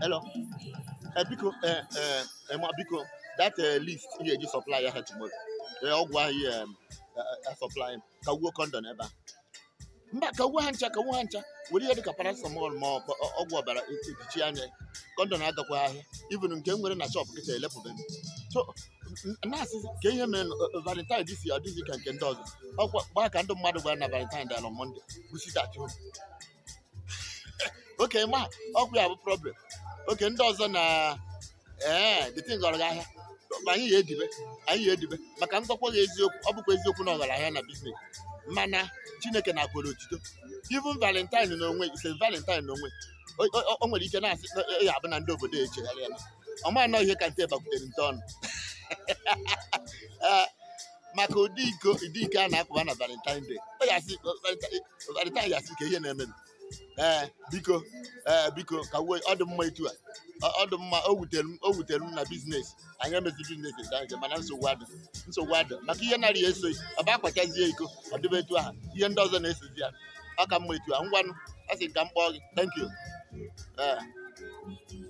hello eh, biko eh, eh, ma biko that list ị ga-eji supply ya ha tomorrow ọgwụ ahụ um, supply ka wuo kondon ebe a mba ka wuo ha ncha ka wuo ha ncha were ihe dịka paracetamol ma ọ ọgwụ ọbara ejichi e, anya kondon agakwa ahịa even nke m nwere na shop kịta elepụbeghị so na-asị ka ihe mere valentine dịsi adịghị ka nke ndị ọzọ ọkwa gbaa ka ndị mmadụ gwara na valentine dị ala monde kwụsịtachi oke ma ọkụ ya bụ problem oke ndị ọzọ na ee eh, dịtin gara ahịa ma anyị ya edibe anyị ya edibe maka mkpọkwa gị eziokwu ọ bụkwa eziokwu na ọgarahịa na biznes mana chineke na-akwere otito even valentine n'onwe ise valentine n'onwe o nwere ike na-asị e, e, ya abụ na ndị obodo echegharị ya ọ ma anọ ihe ka nte bakwutere nte ọnụ eh, maka ụdị iko ụdị ike a na-akpụba na valentine day valentine ya asị ka ihe na-eme ee eh, biko ee eh, biko ka wee ọ dị mma etu a ọ dị mma o wutere m o wutere m na biznes anyị emezi biznes nta nke mana nsogbu adị nsogbu adị maka ihe narị ya esoghị ọ bụ akpachazie iko ọ dịbe etu ahụ ihe ndị ọzọ na-esozi ya ọ ka mma etu a ngwanụ a sị ka m kpọọ gị thank you ee eh.